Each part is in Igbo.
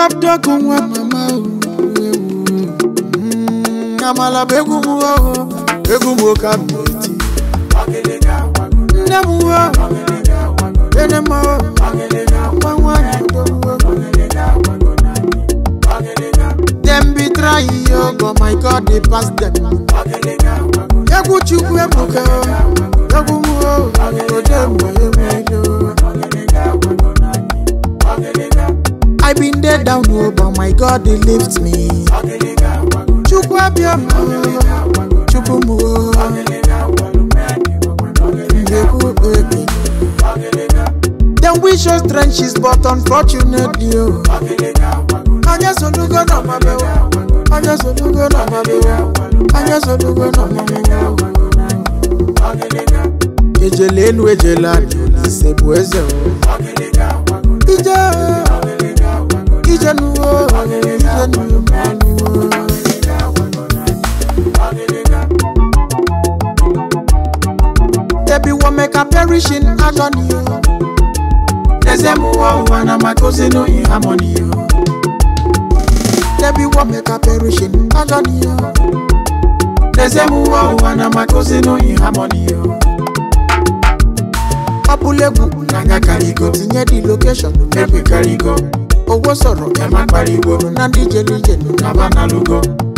kaptọkụ nwa mama amala bụ egwu m egwu m oke abụti nne m uwe ene m nwa nwanyị udo dem be trying yo oh, but my god dey pass dem egwu chukwu ebuka They lift me chukwu abịama chukwu mụo ndekwu Then we wish trenches but unfortunately o oh. anya sonugo na oh. anya na oh. anya na ejele o lóòótọ́ ni o ẹsẹ̀ mú wọ́n wà náà máa tó sínú ìhámọ́ ni o lẹ́bí wọ́n mẹ́ka bẹ̀rù ṣe ní lọ́jọ́ ni o ẹsẹ̀ mú wọ́n wà náà máa tó sínú ìhámọ́ ni o ọbúlẹ̀gùn nàgà kàrígọ́ tìyẹn di location lẹ́gbẹ̀ẹ́ kàrígọ́ owó sọ̀rọ̀ ẹ̀ má pariwo nínú díje díje nínú nàbànálùgọ́.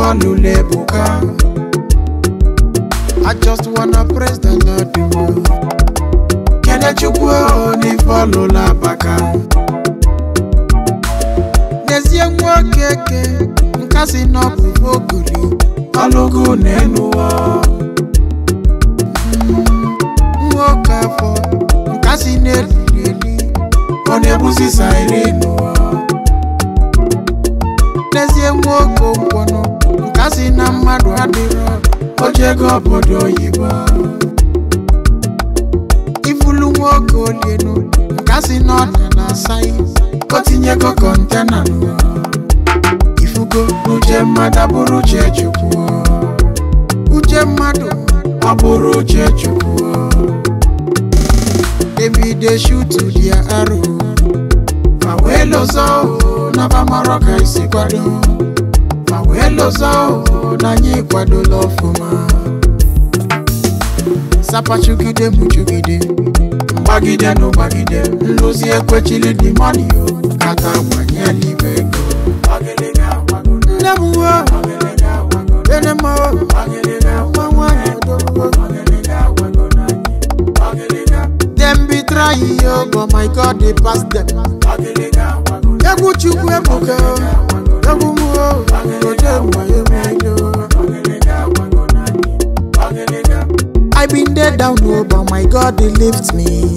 I just wanna praise the Lord the one Kele chukwu oni follow la baka N'ezie nwa keke nka si n'ọbụ ogori ọlụgụ n'elu ụwa nwoke afọ nka si n'eriri eri ọ na-ebusi sairi n'ụwa n'ezie nwoke ụgwọ si na mmadụ adịrọ oche ego obodo oyibo ifulu nwa oke olie n'ụlọ nka si na ọna na asaghị o tinye ego kọntena n'ụlọ ifugo uche mmadụ abụrụ uche chukwu uche mmadụ abụrụ uche chukwu ebide shutu dị arụ ma wee lọzọ na bamarọ ka isi kwado pendo zangu nanyi kwado lofuma sapa chugide muchugide mgbagide no gbagide ekwe chile di mani o kata gbanye n'ime ego nne m uwe ene m nwa nwanyị odogbo dem be try yo but my god dey pass dem egwu chukwu chukwe egwu m muo. I have been there down low, but my God, He lifts me.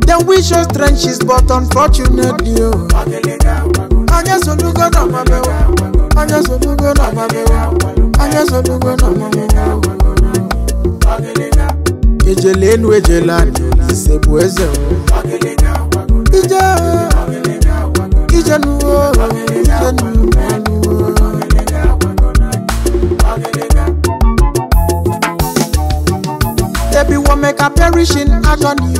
They wish us trenches, but unfortunately, oh. Anya sonugo na mabewa, oh ijele elu ejele anị ise bụ eze ije ijenu ijenu Ebi wo make a perish in agony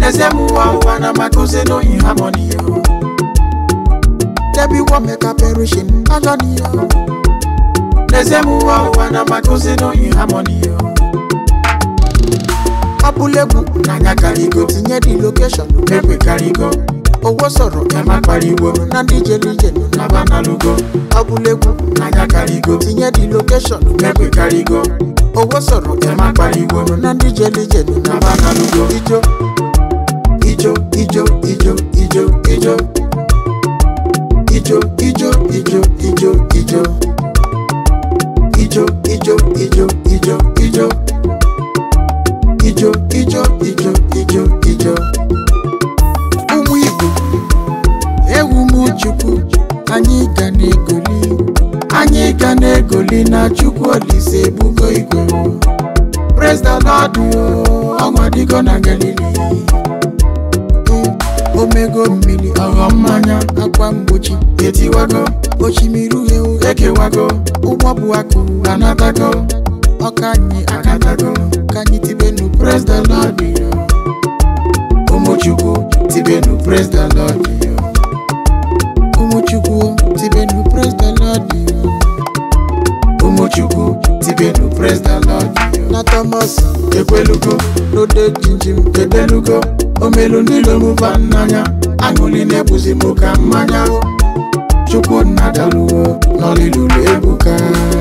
Nezemu wa wa na matuze no in harmony Ebi wo make a perish in agony Nezemu wa wa na matuze no in harmony abúlégbu nanya karigo tinye di location mekwe karigo owó sọ̀rọ̀ ẹ má pariwo na díje díje nù nàbà nálùgọ abúlégbu nanya karigo tinye di location mekwe karigo owó sọ̀rọ̀ ẹ má pariwo na díje díje nù nàbà nálùgọ ijó ijó ijó ijó ijó ijó ijó ijó ijó ijó ijó ijó ijó ijó ijó ijó. ijo ijo ijo ijo ijo ụmụ igbo ewu m anyị ga na-egoli anyị ga na-egoli na chukwu olise ebugo igwe president adụ ọnwa dịgo na galili omego mmiri ọghọ mmanya akwa mgbochi etiwago osimiri uhie ekewago ụgbọ bụ akụ anatago ọka anyị akatago the Lord be you. Umuchuku, Tibenu, praise the Lord be you. Umuchuku, Tibenu, praise the Lord be you. Umuchuku, Tibenu, praise the Lord be you. Natamas, Ekweluko, Rode Jinjim, Kedeluko, Omelu Nilomu Vananya, Anguline Buzimuka Manya. Chukwu Nadaluo, n'olilulu ebuka.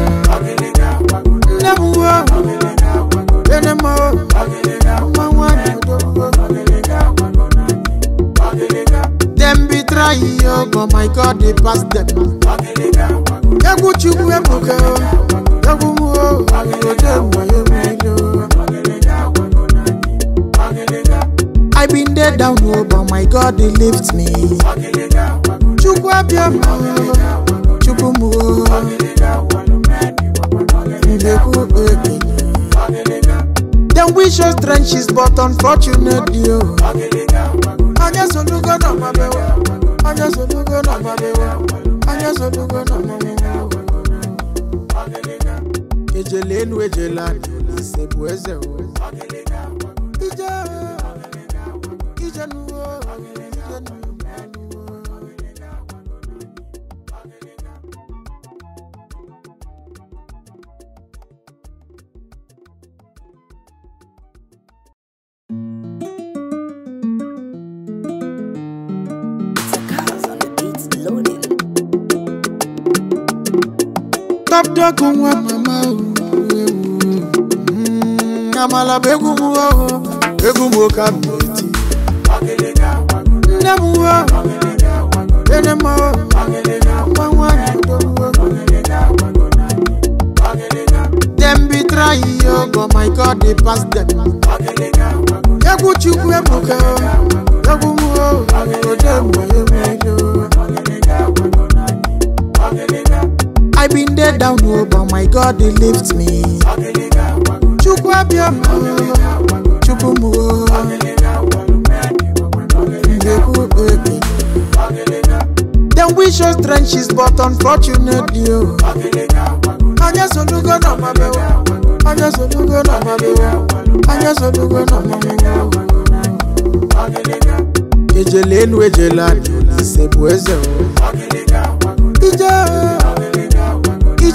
oh my god they pass I egwu chukwu ebuka egwu o ode mwayo milo i been there down low, oh, but my god they lift me chukwu oh. oh. wish us trenches but unfortunately Sous-titrage ST' 501 abdọ́kun wa màmá o. Àmàlà mm, bẹ egungun wa o, egungun ka mi ti. Nne m wa, ene m o, nwa Dem be trying yo, oh, but my God dey pass dem. Egwu Chukwu ebuka o. dey down o oh, but my god dey lift me. chukwu abiam o chukwu m o ndekwu baby. dem wish us trenches but unfortunately o. Oh. onye solugo na ọmabe o onye solugo na ọmabe o onye solugo na ọmabe o. ejele elu ejele ala ise bụ eze o. Oh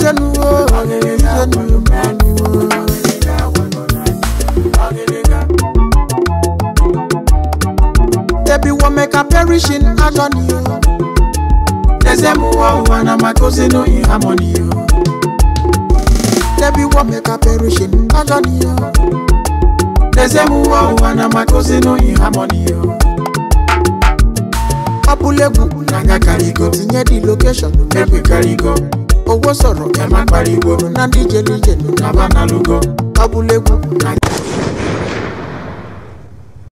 jẹnu o ọ̀gẹ̀dẹ̀ jẹnu o. Ebi wọ mẹka perish in agony o. Ẹsẹ̀ mu wọ wà na ma tó sínú ìhámọ́ni o. Ebi wọ mẹka perish in agony o. Ẹsẹ̀ mu wọ wà na ma tó sínú ìhámọ́ni o. Ọbúlẹ̀gùn na nga carry go, tinye di location, make we carry go. owó sọ̀rọ̀ ẹ má pariwo na díje díje nù nàbà